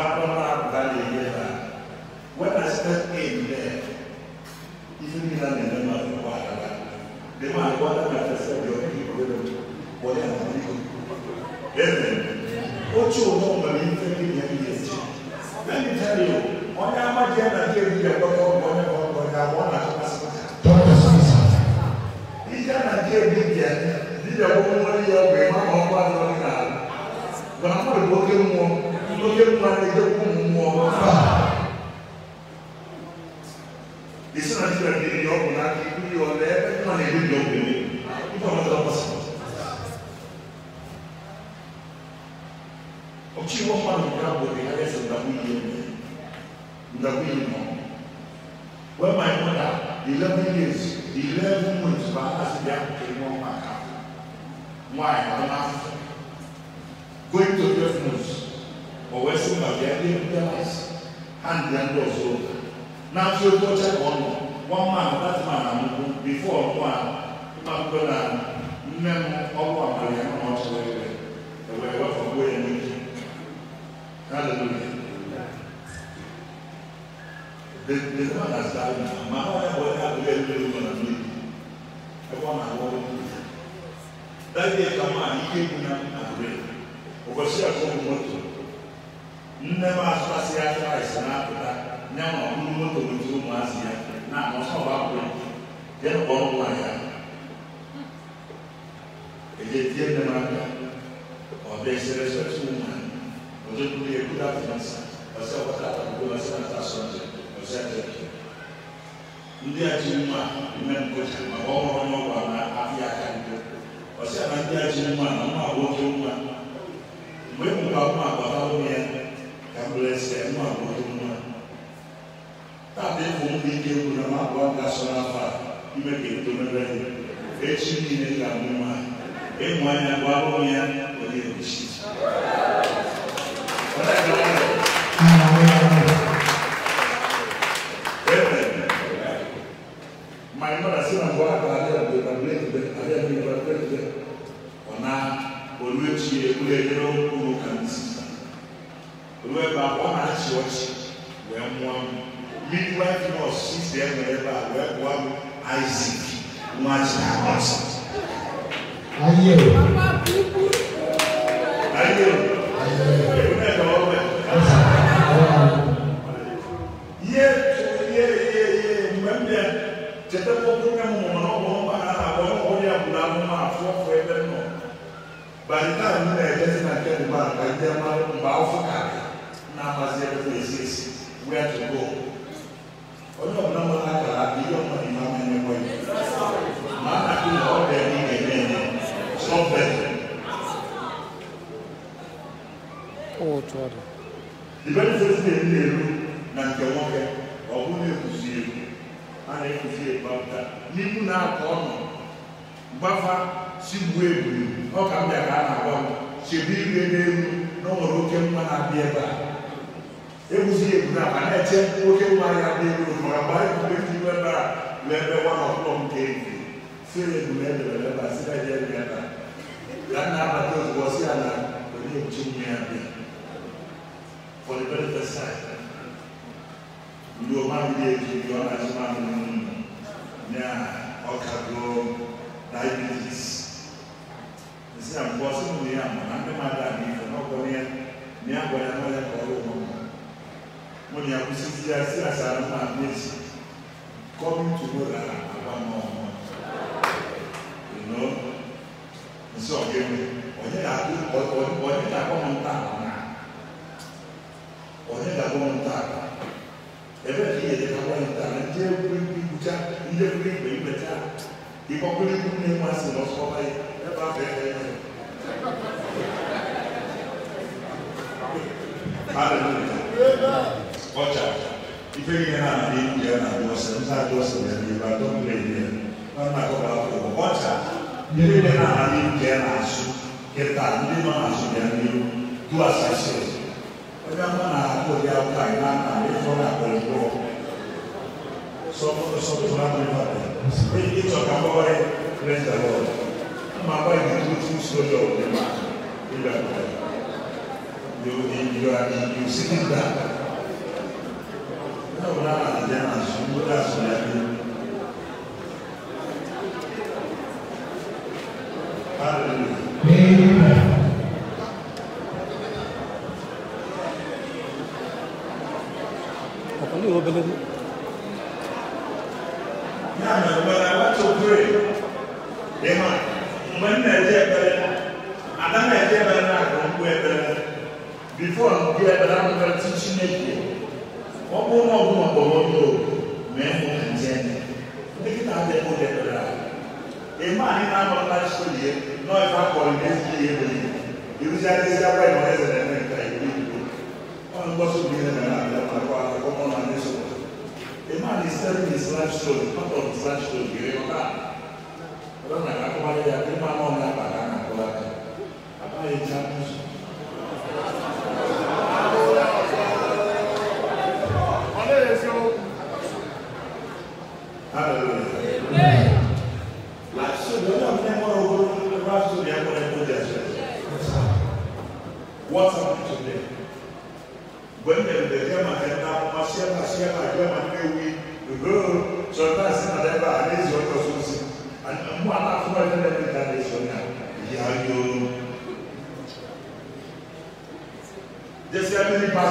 Akron Valley River. When I stepped in there, even in an enema of water, the man wanted me to say, Your people will do what they are doing. Amen. What you know, my infant years. Let me tell you, on your mother, I gave you a bottle of water, but I want to ask Dr. Sasa. He can't give me the woman here, my mom, my mother, my mother, my mother, my mother, lókè kura ẹ jẹ kó mu ọ fà èsì náà ti rẹ ní ìyọ ọkùnrin náà kí ibi yọ ọdẹ ẹ kí wọn lè ní ìyọ ọkùnrin nípa wọn lọ bọ sí. ọtí wọn fà mí ká bọ ní ẹsẹ ndàkú yìí mi ndàkú yìí mọ wọn máa ń wọn dà eleven years eleven months bá a sì bí akéwì wọn máa kà wọn àyè wọn máa fọ going to twelve months ɔwɔ ɛsɛ mu adeɛ adeɛ bi da ase handi ando ɔso n'afi obi ɔkyɛ kɔn no wɔn mu ano dati mu anam no bifo ɔno a ɔmo akɔ na nne mu ɔwɔ abali ano na ɔkyɛ wɔ ɛwɛ ɛwɔ ɛwɔ fɔ bo yɛ ne bi hallelujah the the man has died now maa ɔyɛ bɔ ɛyɛ abɔ yɛ ɛwɔ ɛwɔ na mi ɛwɔ na awɔ wɔ mi dadi yɛ kama a yi ke mu na abɔ yɛ ɔbɛsi akɔ mu mɔto nne m asụasị ya kraịst na-apụta nye nwa ọkpụrụ moto ndị ụmụazị ya na anọsọba akwụkwọ jee kpọọ nwa ya eje tie nne m aka ọ bịa esere sọtụ nwa ọzọ kwuru ya kwuru afịnasa ọsị ọkpọta atakpụkpọ ọsị na asọnje ọsị ajọke ndị a ji nwa ime nkọcha maka ọhụrụ n'ọgwa na afịa aka ndị ọsị na ndị a ji nwa na nwa nwoke nwa mgbe m e gwa nwa agbata ụmụ ya kàmúlẹsẹ mú àwọn tó mú ẹ tàbí fún mi dé wò náà má bọ àgbà sọ náà fà ìmẹ kì í tó ní bẹ etí mi ní kàmú ma èmu ayé àgbà wọn yẹn wọlé ẹbí by the time you know, just like that, about, like, they're not about for otu ọ dị na na nke nwoke ọ bụ na-ekuzi a na n'ihu na-akọ gbafa sigbuo ebuli ọ ka mbịa ka a na-agwa m chebe ire n'elu na ọ nwere oke mma na-abịa ebe a e eguzi na a na-eche oke mma ya abịa elu mara mgbe anyị ebe a ebe nwa na ọkpụkpọ nke na e ebe a bi etu bi ɔna so ma no mu na ɔka do diabetes ɛsɛ mpɔ so mu ne ama na ne ma da ne fɛ na ɔkɔ ne ne abɔ ne ma yɛ kɔɔ wɔ mu mo ne akusi ti ase asaare ma ne ti kɔmi tumo la aba ma ɔmo ɛnɔ nsɛ ɔkɛ mu ɔyɛ la ɔyɛ la kɔmɔ ntaako na ɔyɛ la kɔmɔ ntaako ɛbɛ fi yɛ dɛka wɔn ta na ndé ekuli bi kuta ndé ekuli gbɛ gbɛta ikɔkuli kun ne mu asi na ɔsɔ bayi ɛba bɛ ɛyɛ hallelujah ɔkya ife yi na adi yɛ na adi ɔsɛ nsa adi ɔsɛ yɛ di ba dɔm lɛ yɛ ɔna kɔ ba fɔ ɔkya ife yi na adi yɛ na asu kɛta ndé ma asu yɛ ni du asase. Bagaimana aku dia kainan dari zona berjuang? Sopo sopo zona privada. Ini itu kamu boleh rendah loh. Mama yang itu itu sudah lima. Tidak boleh. You you are you sitting down. Kau nak ada jangan sudah sudah against GMA. Usually, they are quite honest and I One goes to be in another, my father, come on, and this one. A man is telling his life story, part of his life story. You remember that? I don't know, I come out here, I think my mom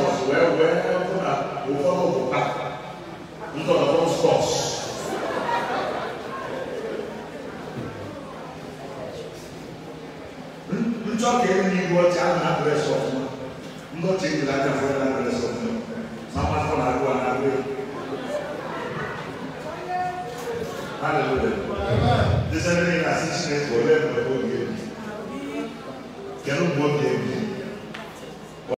church wee wee hụ na ụfọdụ bụ a ndọrọndọrọ spọs njọ ka enyi iwu ọcha a na-adresị ọfụma ndọcha ejila aka fere na-adresị ọfụma ma mmadụ na-agụ a na-agụ ya Hallelujah. This is the thing I see. Kedu mgbe